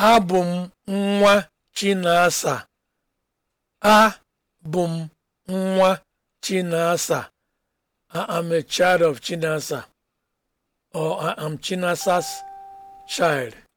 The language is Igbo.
abụ m nwa chinasa abụ m nwa chinasa i am a child of chinasa or i am chinasa's child